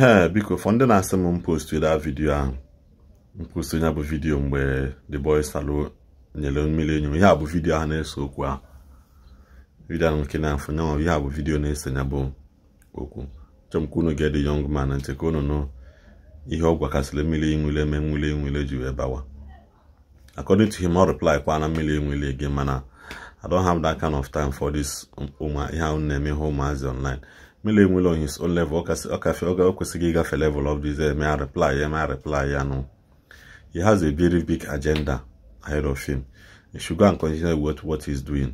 ee biko fọ ndị na-asị m mpostu da vidio ahụ mpostu ya bụ vidiyo mgbe the boy salo nyere mmiri enyo ihe a bụ vidio ahụ na-eso okwu ahụ vidio ahụ nke na-afọ ihe a bụ vidiyo na-ese nya bụ okwu chọọ ka unu ga yọng man nche ka unu nụ ihe ọ gwakasịrị mmiri nwile eme nwile nwile ji wee bawa according to him ọ reply kwa na mmiri nwile gị mana I don't have that kind of time for this um, ihe ahụ na-eme ihe ụmụazị online mele enwere on his own level ọkafe oge o kwesịghị ịgafe level of this eme eh, reply eme eh, reply ya nụ he has a very big agenda ahead of him he should go and continue with what doing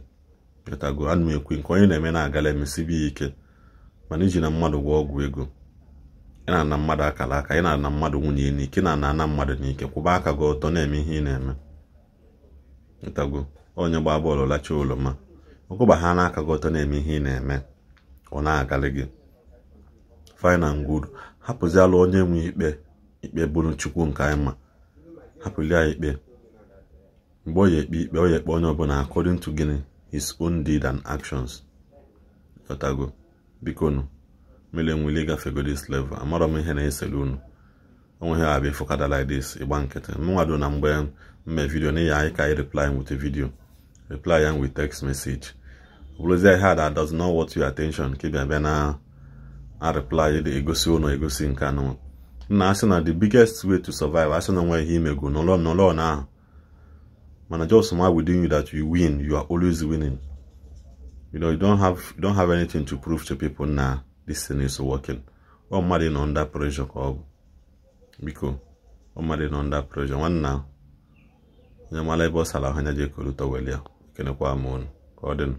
beta anụ ekwe nke onye na-eme na-agala ya ike mana iji na mmadụ gwọ ọgwụ ego ị na-ana mmadụ akara aka ị na-ana mmadụ nwunye n'ike na-ana ana mmadụ n'ike kwụba aka gị ọtọ na-eme ihe ị na-eme ntago onye gbaa bọọlụ lachaa ụlọ ma ọkụba ha n'aka gị ọtọ na-eme ihe ị na-eme ọ na-agalị gị fine and good hapụziala onye nwe ikpe ikpe bụrụ chukwu nke anyị ma ikpe mgbe ọ ya ekpe ikpe ọ ya ekpe onye ọbụla according to gịnị his own deed and actions ọtago biko nụ mere nwere ịgafego level amara m ihe na-esere unu onwe ha abịa fụkada like ịgba nkịtị mnwado na mgbe mme vidio n'ihi anyị ka anyị reply with video reply ya with text message ọbụlụzi ihe that does not worth your attention ka ịbịa bịa na reply egosi ụnụ egosi nke anụ nna asị na the biggest way to survive asị na nwe ihe imegu n'ụlọ n'ụlọ na ahụ mana just ma within you that you win you are always winning you know you don't have you don't have anything to prove to people na this thing is working ọ mmadụ nọ under pressure ka ọ bụ biko ọ mmadụ nọ under pressure nwanna onye mara ebe ọ sara ahụ anya ji ekolu tọwel ya m ụnụ ka ọ dịnụ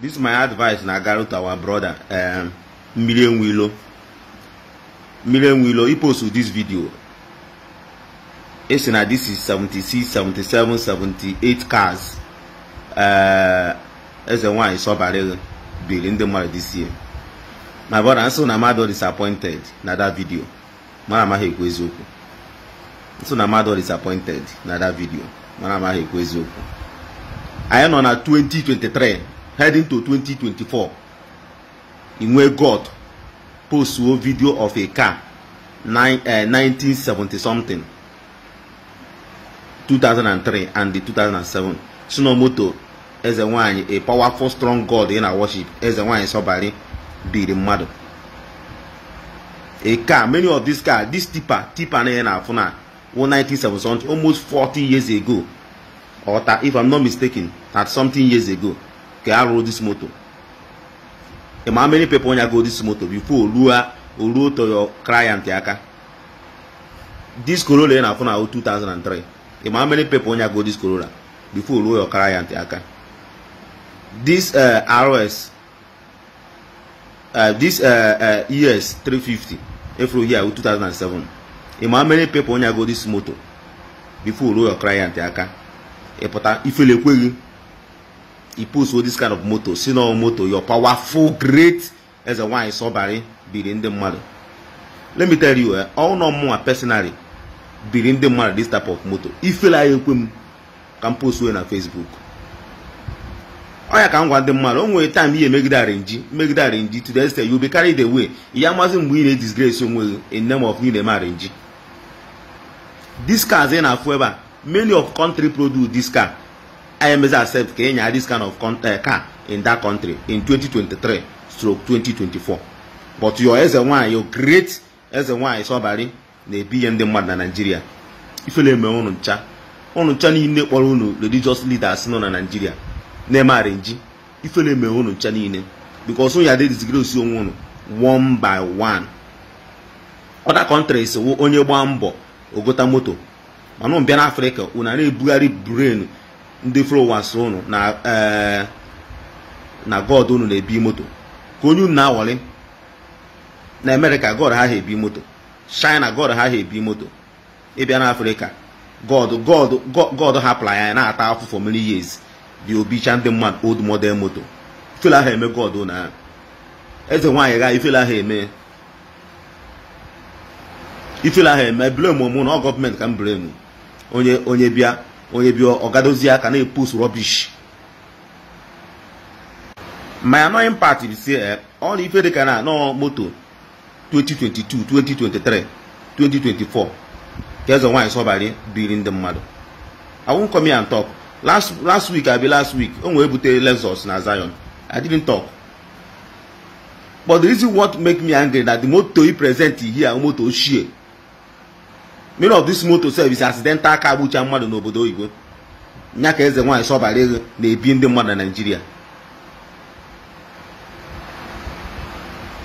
this my advice na garu our brother um, eh, million willow million willow he post this video Esse na this is 76 77 78 cars eze nwanyị sọbarị biri ndị mmadụ this year my brother so na mmadụ disappointed na that video mara amaghị ekwu eziokwu nso na mmadụ disappointed na that video mara amaghị ekwu eziokwu anyị nọ na 2023 heading to 2024 inwe god postuo video of a car nine, uh, eh, 1970 something 2003 and the 2007 sinomoto eze nwanyị a powerful strong god in our worship eze nwanyị sọbari biri mmadụ a car many of these car this tipa tipa na ya na-afụ na 1970 almost 40 years ago or if i'm not mistaken that something years ago ka a rụrụ dis moto ị ma many people nya go dis moto before ruo oruo to client aka dis Corolla ị na-afụ na 2003 ị ma many people nya go dis Corolla before ruo your client aka this RS dis ES 350 efuru here 2007 ị ma many people nya go dis moto before ruo your client aka ịpụta ifele ekweghị e post this kind of motor si na moto your powerful great eze nwanyị sọbarị biri ndị mmadụ let me tell you ọnụ eh, mụnwa personally biri ndị mmadụ this type of motor ifela ya ekwe m ka m post wee na facebook ọya ka m gwa ndị mmadụ o nwere time ihe megide arinji megide arinji to the extent you be carry the way ihe mazi mgbe ị na-edisgrace onwe gị in name of you na-eme arinji this car ị na-afụ ebe a many of country produce this car IMZ accept ka enye this kind of eh, car in that country in 2023 stroke 2024 but your eze nwanyị your great eze nwanyị Sobari na-ebi ihe ndị mmadụ na naijiria ifele eme ụnụ ncha ụnụ ncha niile kpọrọ unu religious leaders nọ na naijiria na-eme arinji ifele eme ụnụ ncha niile because ụnụ ya dezigere osi onwe ụnụ one by one Ọda countries wụ onye gbaa mbọ ogota moto mana mbịa na Afrịka unu na-ebugharị brenu ndị flowans unu na eh, na god unu na-ebi moto ka onye unu na na amerịka god ha ha ebi moto china god ha ha ebi moto ịbịa na afrịka god god god na-ata afọ for many years dị obicha ndị mmadụ old model moto ifele ahụ eme god unu ha eze nwaanyị gha ifele ahụ eme ifele ahụ eme na ọ gọọmenti ka m blame onye onye bịa onye bi ọgadozi aka na-epost rọbish my annoying part is si eh, ọ na ife dịka na nọọ moto 2022 2023 2024 ka eze nwaanyị sọbari biri ndị mmadụ I wan come here and talk last last week I be last week o nwee butere Lexus na Zion I didn't talk but the reason what make me angry na the moto he present here moto ochie many of this motor service accidental aka agbucha mmadụ n'obodo oyibo nya ka eze nwaanyị sọbara ego na-ebi ndị mmadụ na naijiria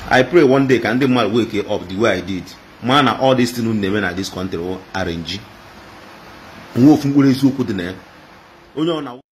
i pray one day ka ndị mmadụ wake up the way i did maa na all this thing na-eme na this country arrange nwe ofu mkpụrụ eziokwu dị na ya onye ọ na